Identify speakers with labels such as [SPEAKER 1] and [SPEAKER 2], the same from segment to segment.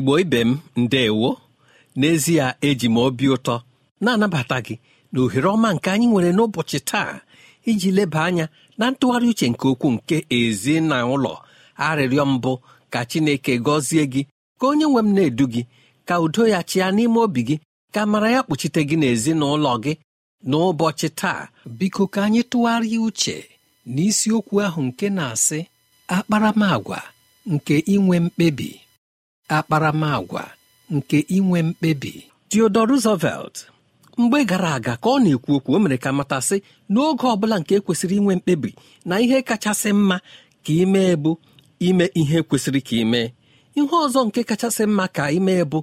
[SPEAKER 1] igbo ibe m ndewo n'ezie eji m obi ụtọ na-anabata gị na ohere ọma nke anyị nwere n'ụbọchị taa iji leba anya na ntụgharị uche nke okwu nke ezi na ụlọ arịrịọ mbụ ka chineke gọzie gị ka onye nwe m na-edu gị ka udo ya chịa n'ime obi gị ka mara ya kpuchite gị n'ezinụlọ gị n'ụbọchị taa biko ka anyị tụgharịa uche n'isiokwu ahụ nke na-asị akparamagwa nke inwe mkpebi akparamagwa nke inwe mkpebi Theodore Roosevelt mgbe gara aga ka ọ na-ekwu okwu o mere ka matasị n'oge ọ bụla nke kwesịrị inwe mkpebi na ihe kachasị mma ka ime bụ ime ihe kwesịrị ka ime ihe ọzọ nke kachasị mma ka ime bụ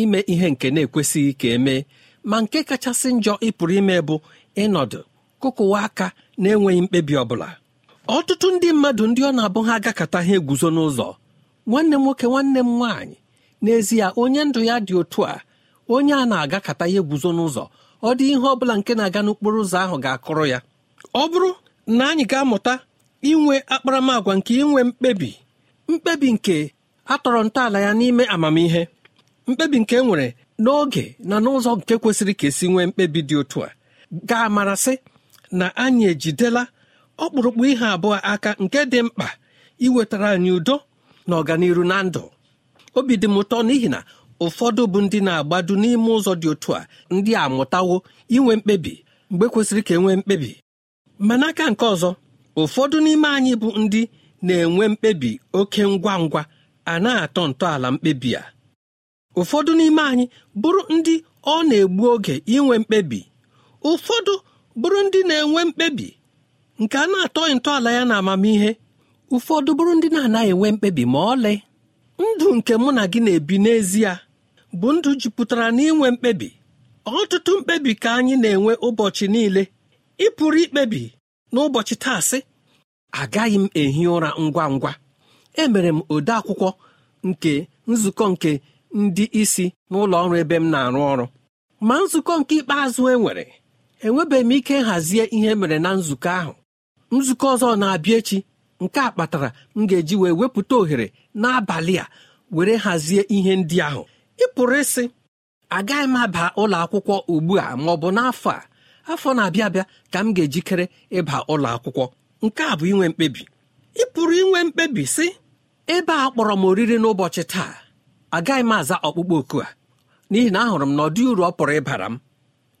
[SPEAKER 1] ime ihe nke na-ekwesịghị ka emee ma nke kachasị njọ ịpụrụ ime bụ ịnọdụ kụkụwa aka na-enweghị mkpebi ọ bụla ọtụtụ ndị mmadụ ndị ọ na-abụ ha agakọta ha eguzo n'ụzọ nwanne m nwoke nwanne m nwaanyị n'ezie onye ndụ ya dị otu a onye a na-agakata ihe guzo n'ụzọ ọ dị ihe ọbụla nke na-aga n'okporo ụzọ ahụ ga-akụrụ ya ọ bụrụ na anyị ga-amụta inwe akparamagwa nke inwe mkpebi mkpebi nke atọrọ ntọala ya n'ime amamihe mkpebi nke e nwere n'oge na n'ụzọ nke kwesịrị ka esi nwee mkpebi dị otu a ga-amarasị na anyị ejidela ọkpụrụkpụ ihe abụọ aka nke dị mkpa iwetara anyị udo na ọganiru na ndụ obi dị m ụtọ n'ihi na ụfọdụ bụ ndị na-agbado n'ime ụzọ dị otu a ndị a mụtawo inwe mkpebi mgbe kwesịrị ka enwee mkpebi ma n'aka nke ọzọ ụfọdụ n'ime anyị bụ ndị na-enwe mkpebi oke ngwa ngwa a na-atọ ntọala mkpebi a ụfọdụ n'ime anyị bụrụ ndị ọ na-egbu oge inwe mkpebi ụfọdụ bụrụ ndị na-enwe mkpebi nke a na-atọ ntọala ya na amamihe ụfọdụ bụrụ ndị na-anaghị enwe mkpebi ma ọlị ndụ nke mụ na gị na-ebi n'ezie bụ ndụ jupụtara n'inwe mkpebi ọtụtụ mkpebi ka anyị na-enwe ụbọchị niile ịpụrụ pụrụ ikpebi n'ụbọchị taasị agaghị m ehi ụra ngwa ngwa emere m ode akwụkwọ nke nzukọ nke ndị isi n'ụlọ ọrụ ebe m na-arụ ọrụ ma nzukọ nke ikpeazụ enwere enwebeghị m ike nhazie ihe e mere na nzukọ ahụ nzukọ ọzọ na-abịa echi nke a kpatara m ga-eji wee wepụta ohere n'abalị a were hazie ihe ndị ahụ ị pụrụ ịsị agaghị m aba ụlọ akwụkwọ ugbu a ma ọ bụ n'afọ a afọ na-abịa abịa ka m ga-ejikere ịba ụlọ akwụkwọ nke a bụ inwe mkpebi ị pụrụ inwe mkpebi sị ebe a kpọrọ m oriri n'ụbọchị taa agaghị m aza ọkpụkpọ oku a n'ihi na ahụrụ m na ọ uru ọ pụrụ ịbara m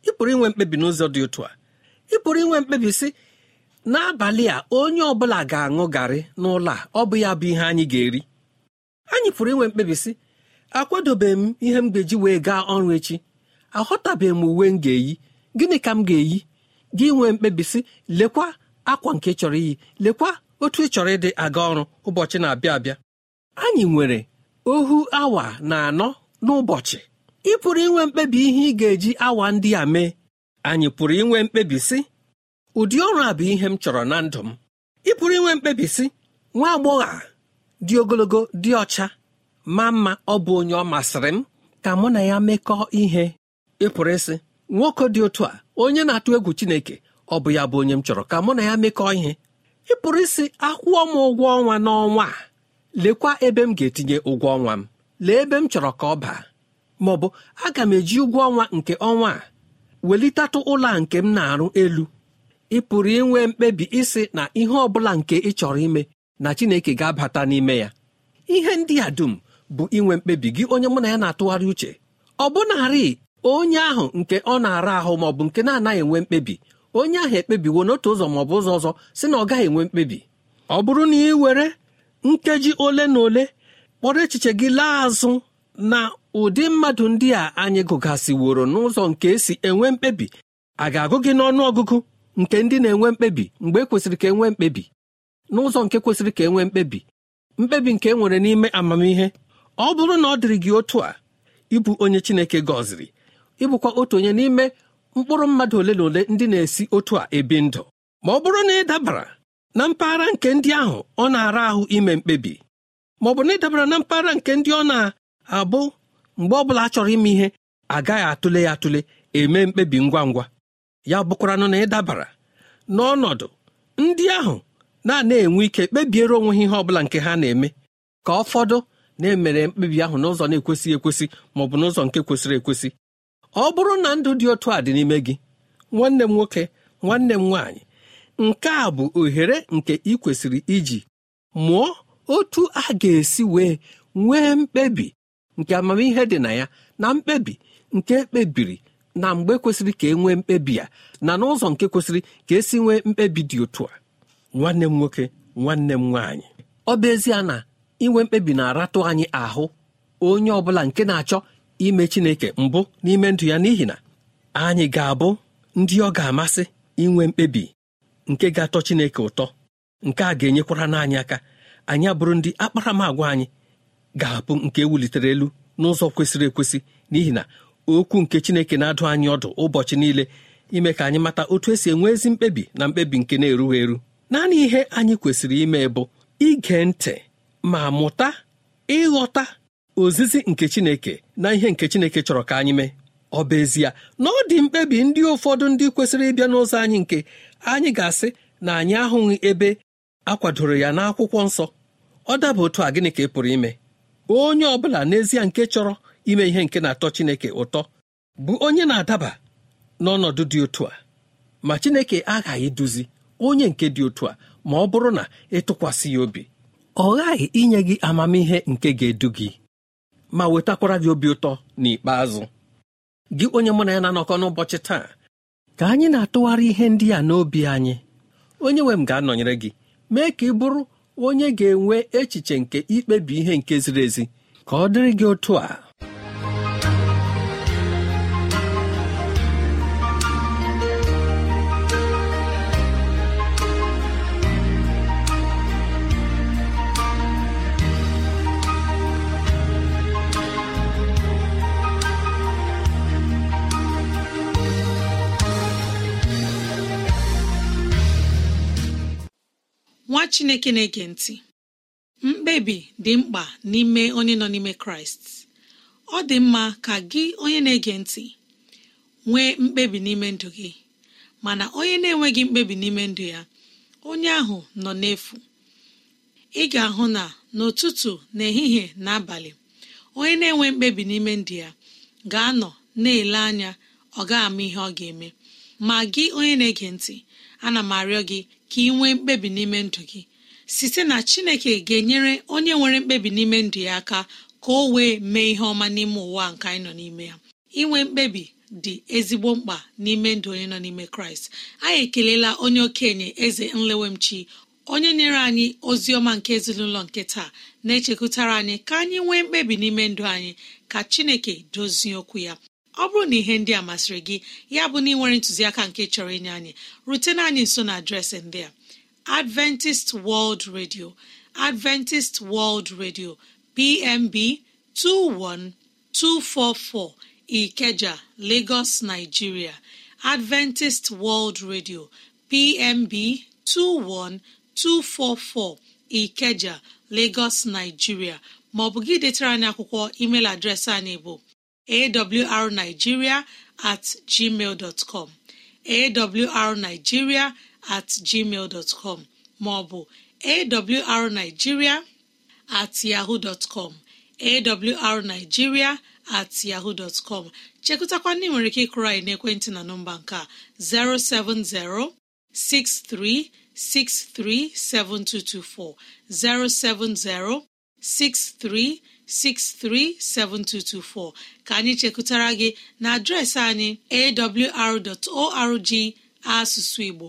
[SPEAKER 1] ị pụrụ inwe mkpebi n'ụzọ dị otu a ị pụrụ inwe mkpebi sị n'abalị a onye ọ bụla ga-aṅụ garị n'ụlọ a ọ bụ ya bụ ihe anyị ga-eri anyị pụrụ inwe mkpebi sị m ihe m ga-eji wee gaa ọrụ echi aghọtabeghị m uwe m ga-eyi gịnị ka m ga-eyi gị nwee mkpebi sị lekwa akwa nke chọrọ iyi lekwa otu ị chọrọ ịdị aga ọrụ ụbọchị na-abịa abịa anyị nwere ohu awa na anọ n'ụbọchị ị pụrụ inwe mkpebi ihe ị ga-eji awa ndị a mee anyị pụrụ inwe mkpebi ụdị ọrụ a bụ ihe m chọrọ na ndụ m ị pụrụ inwe si nwa agbọghọ a dị ogologo dị ọcha ma mma ọ bụ onye ọ masịrị m ka mụ na ya mekọọ ihe ịpụrụ isi nwoke dị otu a onye na-atụ egwu Chineke ọ bụ ya bụ onye m chọrọ ka mụ na ya mekọọ ihe ịpụrụ isi akwụọ m ụgwọ ọnwa n'ọnwa a lekwa ebe m ga-etinye ụgwọ ọnwa m lee ebe m chọrọ ka ọ baa ma ọ bụ aga m eji ụgwọ ọnwa nke ọnwa a welitatụ ụlọ a nke m na-arụ elu ị pụrụ inwe mkpebi isi na ihe ọ bụla nke ị chọrọ ime na chineke ga-abata n'ime ya ihe ndị a dum bụ inwe mkpebi gị onye mụ na ya na-atụgharị uche ọ bụnarị onye ahụ nke ọ na-ara ahụ maọbụ nke na-anaghị enwe mkpebi onye ahụ ekpebiwo n'otu ụzọ maọbụ ụzọ ọzọ si na ọ gaghị enwe mkpebi ọ bụrụ na ị were nkeji ole na ole kpọrọ echiche gị laa azụ na ụdị mmadụ ndị a anyị gụgasịworo n'ụzọ nke esi enwe mkpebi a ga-agụ gị n'ọnụ ọgụgụ nke ndị na-enwe mkpebi mgbe e kwesịrị ka e nwee mkpebi n'ụzọ nke kwesịrị ka e nwee mkpebi mkpebi nke e nwere n'ime amamihe ọ bụrụ na ọ dịrị gị otu a ịbụ onye Chineke gọziri ịbụkwa otu onye n'ime mkpụrụ mmadụ ole na ole ndị na-esi otu a ebi ndụ ma ọ bụrụ na ị dabara na mpaghara nke ndị ahụ ọ na-ara ahụ ime mkpebi ma ọ bụ na ị dabara na mpaghara nke ndị ọ na-abụ mgbe ọ bụla a chọrọ ime ihe agaghị atụle ya atụle eme mkpebi ngwa ngwa ya bụkwaranụ na ị dabara n'ọnọdụ ndị ahụ na-ana enwe ike kpebiere onwe ha ihe ọ bụla nke ha na-eme ka ụfọdụ na-emere mkpebi ahụ n'ụzọ na-ekwesịghị ekwesị ma ọ bụ n'ụzọ nke kwesịrị ekwesị ọ bụrụ na ndụ dị otu a dị n'ime gị nwanne m nwoke nwanne m nwaanyị nke a bụ ohere nke ị kwesịrị iji mụọ otu a ga-esi wee nwee mkpebi nke amamihe dị na ya na mkpebi nke ekpebiri na mgbe kwesịrị ka e nwee mkpebi a na n'ụzọ nke kwesịrị ka esi nwee mkpebi dị otu a nwanne m nwoke nwanne m nwaanyị ọ bụ ezie na inwe mkpebi na-aratụ anyị ahụ onye ọ bụla nke na-achọ ime Chineke mbụ n'ime ndụ ya n'ihi na anyị ga-abụ ndị ọ ga-amasị inwe mkpebi nke ga-atọ Chineke ụtọ nke a ga-enyekwara n'anyị aka anyị abụrụ ndị akparamagwa anyị ga-abụ nke e wulitere elu n'ụzọ kwesịrị ekwesị n'ihi na okwu nke chineke na-adụ anyị ọdụ ụbọchị niile ime ka anyị mata otu esi enwe ezi mkpebi na mkpebi nke na-erughị eru naanị ihe anyị kwesịrị ime bụ ige ntị ma mụta ịghọta ozizi nke chineke na ihe nke chineke chọrọ ka anyị mee ọ bụ ezie na ọ dị mkpebi ndị ụfọdụ ndị kwesịrị ịbịa n'ụzọ anyị nke anyị ga-asị na anyị ahụghị ebe akwadoro ya n'akwụkwọ nsọ ọ daba otu a gịnị ka ị pụrụ ime onye ọ bụla n'ezie nke chọrọ ime ihe nke na-atọ Chineke ụtọ bụ onye na-adaba n'ọnọdụ dị otu a ma Chineke aghaghị duzi onye nke dị otu a ma ọ bụrụ na ịtụkwasị ya obi ọ ghaghị inye gị amamihe nke ga-edu gị ma wetakwara gị obi ụtọ n'ikpeazụ gị onye mụ na ya na-anọkọ n'ụbọchị taa ka anyị na-atụgharị ihe ndị a n'obi anyị onye nwe m ga-anọnyere gị mee ka ị bụrụ onye ga-enwe echiche nke ikpebi ihe nke ziri ezi ka ọ dịrị gị otu a
[SPEAKER 2] chineke na-ege ntị mkpebi dị mkpa n'ime onye nọ n'ime kraịst ọ dị mma ka gị onye na-ege ntị nwee mkpebi n'ime ndụ gị mana onye na-enweghị mkpebi n'ime ndụ ya onye ahụ nọ n'efu ị ga-ahụ na n'ụtụtụ n'ehihie na abalị onye na-enwe mkpebi n'ime ndụ ya ga-anọ na-ele anya ọ ga-ama ihe ọ ga-eme ma gị onye na-ege ntị ana m arịọ gị ka ị nwee mkpebi n'ime ndụ gị site na chineke ga-enyere onye nwere mkpebi n'ime ndụ ya aka ka o wee mee ihe ọma n'ime ụwa nke anyị nọ n'ime ya inwe mkpebi dị ezigbo mkpa n'ime ndụ onye nọ n'ime kraịst anyị ekelela onye okenye eze nlewemchi onye nyere anyị ozi ọma nke ezinụlọ nke taa na-echekwutara anyị ka anyị nwee mkpebi n'ime ndụ anyị ka chineke dozie okwu ya ọ bụrụ na ihe ndị a masịrị gị ya bụ na ị nwere ntụziaka nke chọrọ inye anyị rutena anyị nso na adreesị ndị a adventist world radio adventist world radio pmb 21244 ikeja lagos nigeria adventist world radio pmb 21244 ikeja lagos nigeria maọbụ gị detara anyị akwụkwọ email adreesị anyị bụ awrnigeria at gmail dot com awrnigeria at gmail com maọbụ awrnigeria at yahoo dot com awrnigeria at yahoo dot com chekụtakwa ndị nwere ike ịkụrụ anyị n'ekwentị na nọmba nke a 070-6363-7224 070 7224 ka anyị chekụtara gị na adreesị anyị awr.org asụsụ Igbo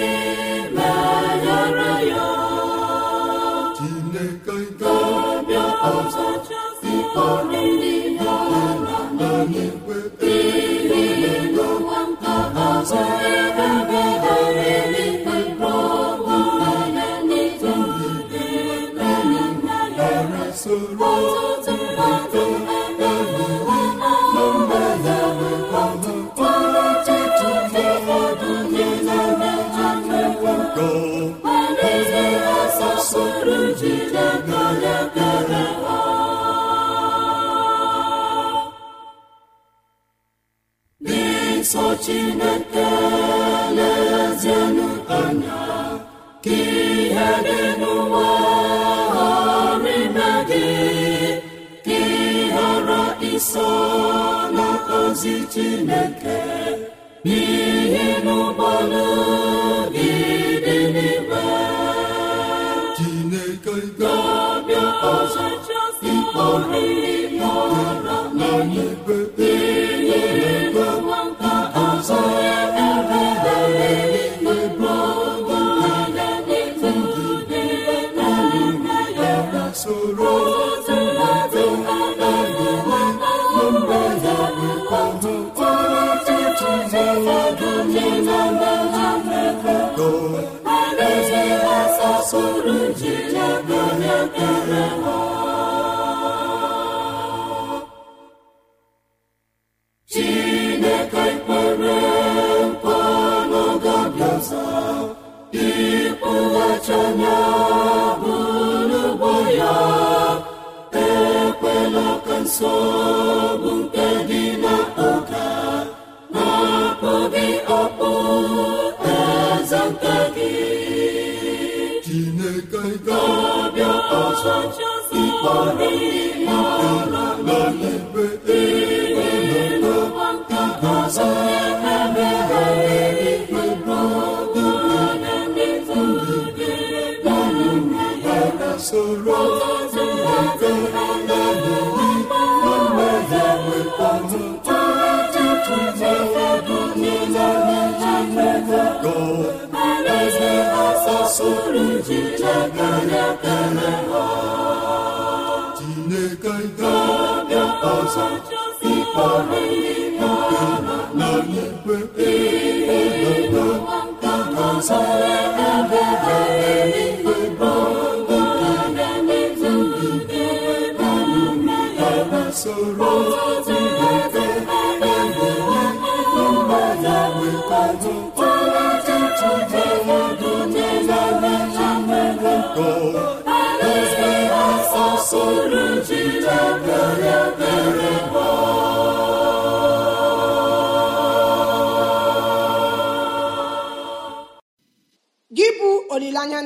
[SPEAKER 3] n'ozi Chineke n'ihi n'ụgbọn'obi dị n'igwe Chineke ga ọzọ nsọ bụ nke dị n'ụka na-akpọghị ọkpụ eze nke gị Chineke ga ọzọ ịkpọrọ ihe n'ala ọgụ alaeze asasoro jije karịa tere ha Chineke ga-abịa ịkpọrọ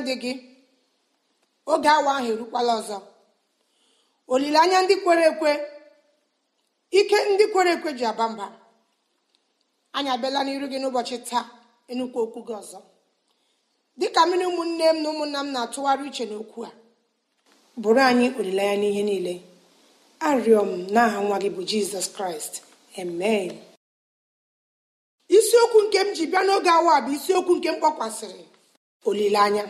[SPEAKER 4] ndị gị oge awa ahụ erukwala ọzọ olileanya ndị kwere ekwe ike ndị kwere ekwe ji aba mba anyị abịala n'iru gị n'ụbọchị taa enukwu okwu gị ọzọ dịka mmiri ụmụnne m na ụmụnna m na-atụgharị uche n'okwu a bụrụ anyị olileanya n'ihe niile arịọ m n'aha nwa gị bụ jizọs kraịst amen isiokwu nke m ji bịa n'oge awa bụ isiokwu nke m kpọkwasịrị olileanya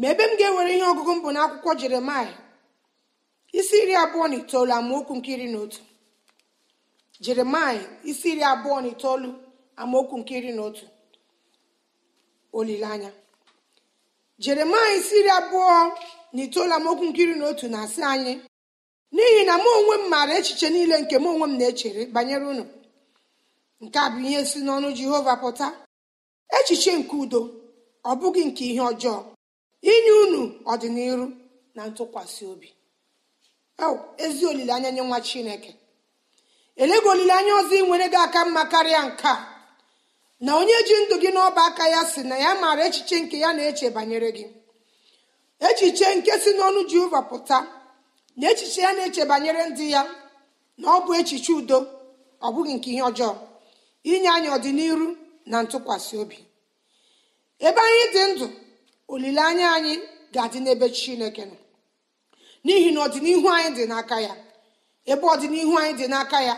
[SPEAKER 4] ma ebe m ga-ewere ihe ọgụgụ m bụ n'akwụkwọ jeremaya isi iri abụọ na itoolu amaokwu nke iri na otu jeremaya isi iri abụọ na itoolu amaokwu nke iri na otu olileanya jeremaya isi iri abụọ na itoolu amaokwu nke iri na otu na-asị anyị n'ihi na mụ onwe m maara echiche niile nke mụ onwe m na-echere banyere unu nke a bụ ihe si n'ọnụ jehova pụta echiche nke udo ọ bụghị nke ihe ọjọọ inye unu ọdịnihu na ntụkwasị obi ezi olileanya nye nwa chineke elego olileanya ọzọ ị nwere gị aka mma karịa nke a na onye ji ndụ gị n'ọba aka ya si na ya maara echiche nke ya na-eche banyere gị echiche nke si n'ọnụ jehova pụta na echiche ya na-eche banyere ndị ya na ọ bụ echiche udo ọ bụghị nke ihe ọjọọ inye anyị ọdịnihu na ntụkwasị obi ebe anyị dị ndụ olileanya anyị ga-adị n'ebe chineke nọ n'ihi na ọdịnihu anyị dị n'aka ya ebe ọdịnihu anyị dị n'aka ya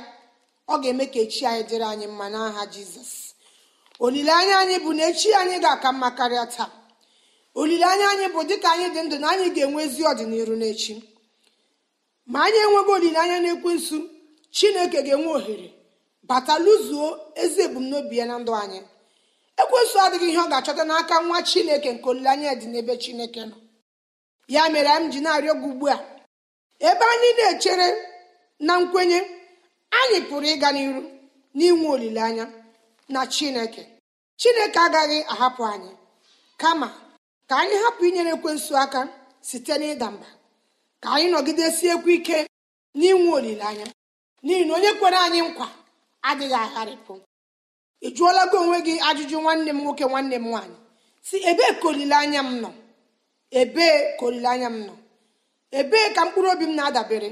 [SPEAKER 4] ọ ga-eme ka echi anyị dịrị anyị mma n'aha jizọs olileanya anyị bụ na echi anyị ga-aka mma karịa taa olileanya anyị bụ dịka anyị dị ndụ na anyị ga-enwe ezi ọdịnihu n'echi ma anyị enweghị olileanya n'ekwensu chineke ga-enwe ohere bata lụzuo ezi ebumnobi ya na ndụ anyị ekwesụ adịghị ihe ọ ga-achọta n'aka nwa chineke nke olileanya dị n'ebe chineke nọ ya mere m ji na-arịọ gị ugbu a ebe anyị na-echere na nkwenye anyị pụrụ ịga n'iru n'inwe olileanya na chineke chineke agaghị ahapụ anyị kama ka anyị hapụ inyere ekwensụ aka site n'ịda mba ka anyị nọgidesiekwu ike n'inwe olileanya n'ihi na onye kwere anyị nkwa adịghị agharịpụ ị jụọla gị onwe gị ajụjụ nwanne m nwoke nwanne m nwaanyị si ebee ka olileanya m nọ ebee ka olileanya m nọ ebee ka mkpụrụ obi m na-adabere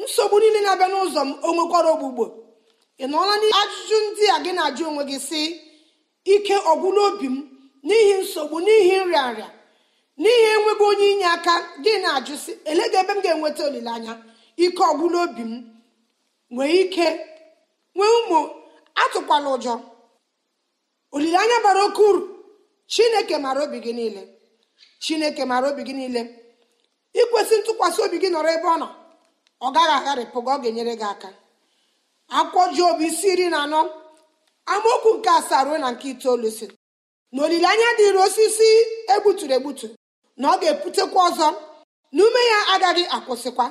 [SPEAKER 4] nsogbu niile na-abịa n'ụzọ m o nwekwara ogbugbo ị nọọla ajụjụ ndị a gị na-ajụ onwe gị si ike ọgwụla obi m n'ihi nsogbu n'ihi nrịa n'ihi enweghị onye inye aka gị na-ajụ si elega ebe m ga-enweta olileanya ike ọgwụla obi m nwee ike nwee ụmụ atụkwala ụjọ olileanya bara oke uru chineke mara obi gị niile chineke mara obi gị niile ikwesị ntụkwasị obi gị nọrọ ebe ọ nọ ọ gaghị agharịpụ gị ọ ga-enyere gị aka akwụkwọ Job isi iri na anọ amaokwu nke asaa ruo na nke itoolu si na olileanya dịịrị osisi egbuturu egbutu na ọ ga-eputekwa ọzọ na ume ya agaghị akwụsịkwa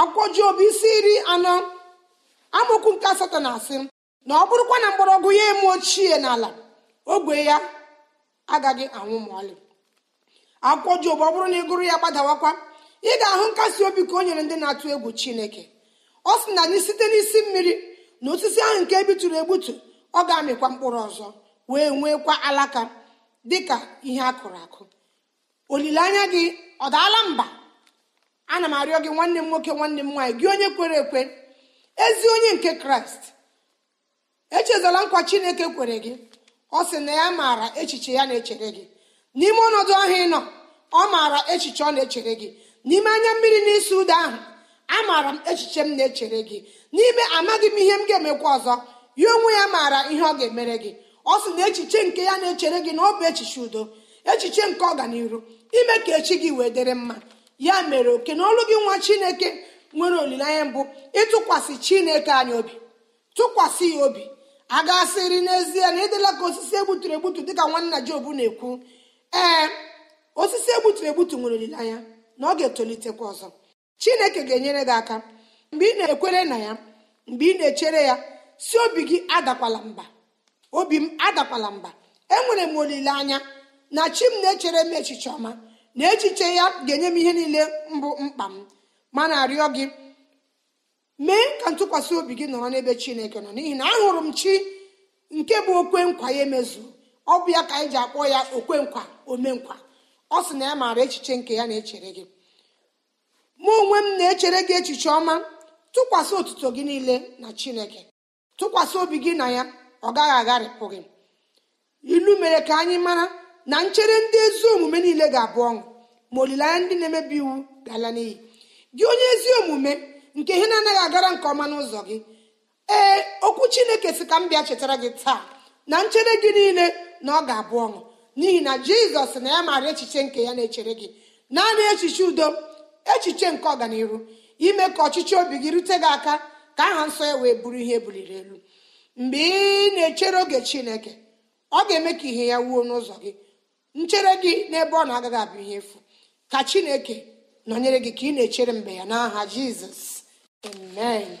[SPEAKER 4] akwụkwọ obi isi iri anọ amaokwu nke asatọ na asị na ọ bụrụkwa na mgbọrọgwụ ya eme ochie n'ala ogwe ya agaghị anwụ ma ọlị akwụkwọ Job ọ bụrụ na ị gụrụ ya gbadawakwa ị ga-ahụ nkasi obi ka o nyere ndị na-atụ egwu Chineke ọ sị na anyị site n'isi mmiri na osisi ahụ nke ebitụrụ egbutu ọ ga-amịkwa mkpụrụ ọzọ wee nwekwa alaka dị ka ihe a kụrụ akụ olileanya gị ọ daala mba ana m arịọ gị nwanne m nwoke nwanne m nwaanyị gị onye kwere ekwe ezi onye nke Kraịst echezala nkwa chineke kwere gị ọ sị na ya maara echiche ya na-echere gị n'ime ọnọdụ ahụ ịnọ nọ ọ maara echiche ọ na-echere gị n'ime anya mmiri n'isi ụda ahụ amaara m echiche m na-echere gị n'ime amaghị m ihe m ga-emekwa ọzọ ya onwe ya maara ihe ọ ga-emere gị ọ sị na echiche nke ya na-echere gị na ọ bụ echiche udo echiche nke ọganiru ime ka echi gị wee dịrị mma ya mere oke na ọlụ gị nwa chineke nwere olileanya mbụ ịtụkwasị chineke anyị obi tụkwasị ya obi a gasịrị n'ezie na ịdịla ka osisi egbuturu egbutu dịka nwanna Job na-ekwu ee osisi egbuturu egbutu nwere olileanya na ọ ga-etolitekwa ọzọ chineke ga-enyere gị aka mgbe ị na-ekwere na ya mgbe ị na-echere ya si obi gị adakwala mba obi m adakwala mba enwere m olileanya na chi m na-echere m echiche ọma na echiche ya ga-enye m ihe niile mbụ mkpa m mana arịọ gị ka ntụkwasị obi gị nọrọ n'ebe chineke nọ n'ihi na ahụrụ m chi nke bụ okwe nkwa ya emezu ọ bụ ya ka anyị ji akpọ ya okwe nkwa omenkwa ọ sị na ya maara echiche nke ya na-echere gị mụ onwe m na-echere gị echiche ọma tụkwasị otuto gị niile na chineke tụkwasị obi gị na ya ọ gaghị agharịpụ gị ilu mere ka anyị mara na nchere ndị ezi omume niile ga-abụ ọṅụ ma olileanya ndị na-emebi iwu ga-ala n'iyi gị onye ezi omume nke ihe na-anaghị agara nke ọma n'ụzọ gị ee okwu chineke si ka m bịa chetara gị taa na nchere gị niile na ọ ga-abụ ọṅụ n'ihi na jizọs na ya maara echiche nke ya na-echere gị naanị echiche udo echiche nke ọganihu ime ka ọchịchị obi gị rute gị aka ka aha nsọ ya wee bụrụ ihe buliri elu mgbe ị na-echere oge chineke ọ ga-eme ka ihe ya wuo n'ụzọ gị nchere gị n'ebe ọ na-agaghị abụ ihe efu ka chineke nọnyere gị ka ị na-echere mgbe ya n'aha jizọs Amen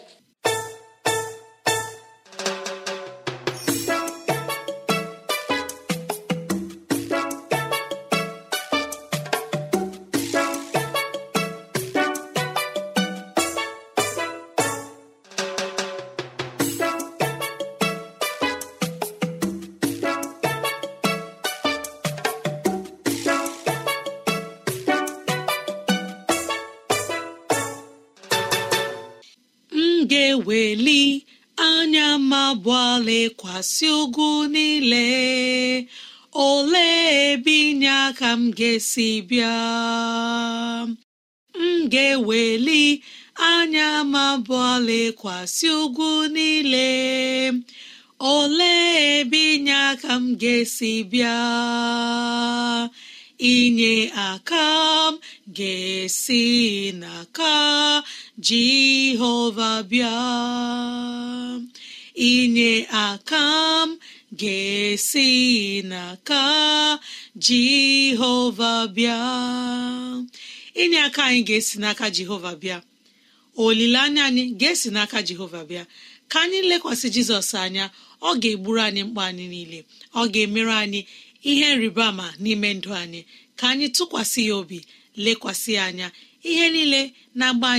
[SPEAKER 2] kasị ugwu niile olee ebe inye aka m ga-esi bịa m ga-eweli anya m abụọ lekwasị ugwu niile olee ebe inye aka m ga-esi bịa inye aka m ga-esi n'aka Jehova bịa inye aka m ga-esi n'aka jehova bịa inye aka anyị ga-esi n'aka jehova bịa olileanya anyị ga-esi n'aka jehova bịa ka anyị lekwasị jizọs anya ọ ga-egburu anyị mkpa anyị niile ọ ga-emere anyị ihe nrịba ama n'ime ndụ anyị ka anyị tụkwasị ya obi lekwasị anya ihe niile na-agba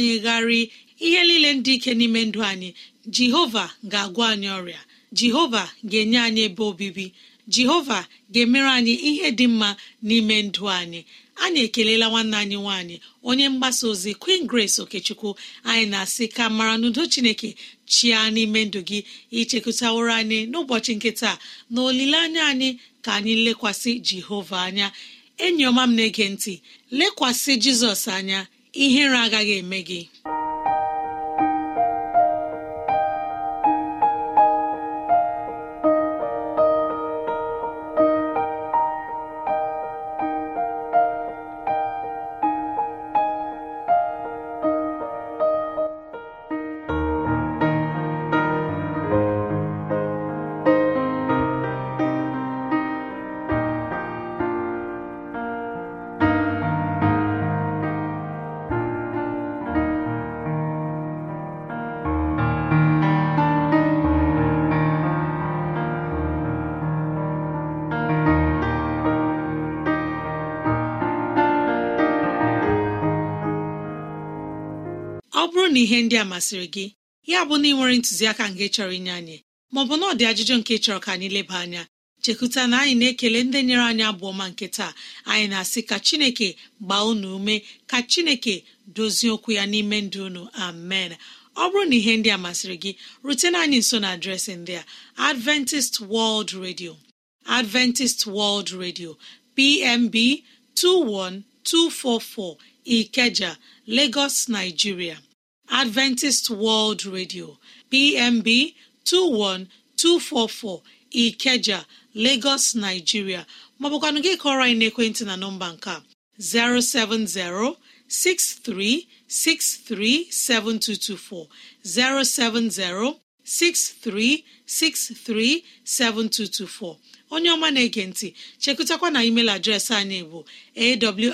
[SPEAKER 2] ihe niile ndị ike n'ime ndụ anyị jehova ga-agwa anyị ọrịa jehova ga-enye anyị ebe obibi jehova ga-emere anyị ihe dị mma n'ime ndụ anyị anyị ekelela nwanne anyị nwanyị, onye mgbasa ozi queen grace okechukwu anyị na-asị ka mara n'udo chineke chia n'ime ndụ gị ichekụtaworo anyị n'ụbọchị nkịta, na olileanya anyị ka anyị lekwasị jehova anya enyi ọma m na-ege ntị lekwasị jizọs anya ihere agaghị eme gị na ihe ndị a masịrị gị ya bụ na ị nwere ntụziaka nke chọrọ inye anyị maọbụ na ọ dị ajụjụ nke chọrọ ka anyị leba anya chekụta na anyị na-ekele ndị nyere anyị abụọ ma nke taa anyị na-asị ka chineke gbaa unu ume ka chineke dozie okwu ya n'ime ndụ unu amen ọ bụrụ na ihe ndị a masịrị gị rutena anyị nso na adreesị ndị a Adventist World Radio Adventist World Radio PMB 21244 Ikeja Lagos Nigeria adventist world radio pmb 21244 ikeja lagos nigeria maọbụkwanụ gị kọrọ anyị n'ekwentị na nọmba nke 07063637224 070 63637224 onye ọma na-ege ntị chekụtakwa na email adreesị anyị bụ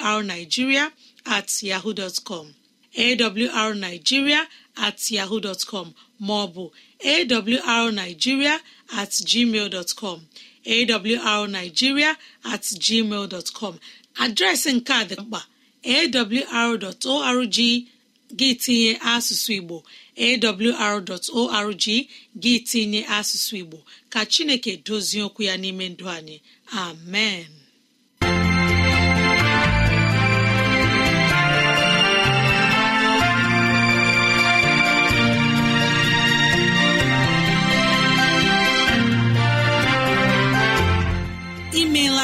[SPEAKER 2] awrnigeria at yahoo com awrnigeria at yahoo com maọbụ awrnigeria at gmail dọtcọm awrnigeria at gmail com adreesị nke a dị mkpa awr.org gị tinye asụsụ Igbo awr.org gị tinye asụsụ Igbo ka Chineke dozie okwu ya n'ime ndụ anyị amen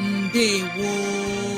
[SPEAKER 2] ndewo